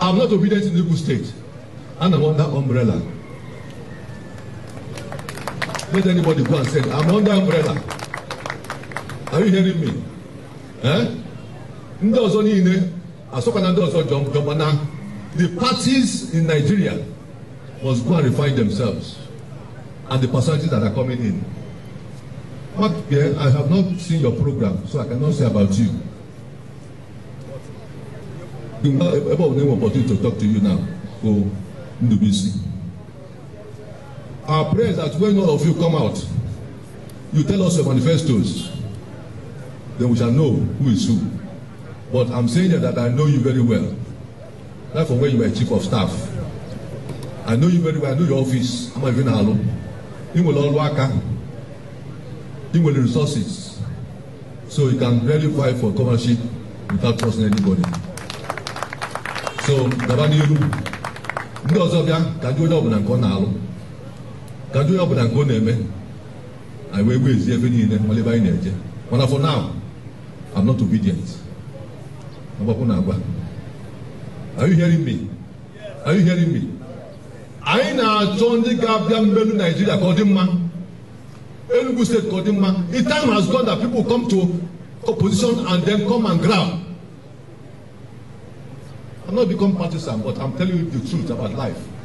I'm not obedient in Igbo State, and I'm under umbrella. Let anybody go and say, I'm under umbrella. Are you hearing me? Eh? Ndị ọzọ niile, asọkwa na ndị ọzọ jọmkwa na the parties in Nigeria must go and refine themselves and the personalities that are coming in. But I have not seen your program, so I cannot say about you ebe ọ bụla enwe opportunity to talk to you now bụ Ndubisi our prayer is that when all of you come out you tell us your manifestos then we shall know who is who but i'm saying that, i know you very well that from when you were chief of staff i know you very well i know your office i'm not even alụ ị nwere ọrụ aka You will resources so you can verify for governorship without trusting anybody. so gaba n'ihu ndị ọzọ bịa ka ndị onye ọbụla nke ọ na-alụ ka ndị onye ọbụla nke ọ na-eme anyị wee ezi ebe niile nwale ebe anyị na-eje mana for now I'm not obedient agbapụ na agwa are you hearing me are you hearing me anyị na-achọ ndị ga-abịa mmelu Nigeria ka ọ dị mma Enugu State ka ọ dị mma The time has gone that people come to opposition and then come and grab I'm not become partisan, but I'm telling you the truth about life.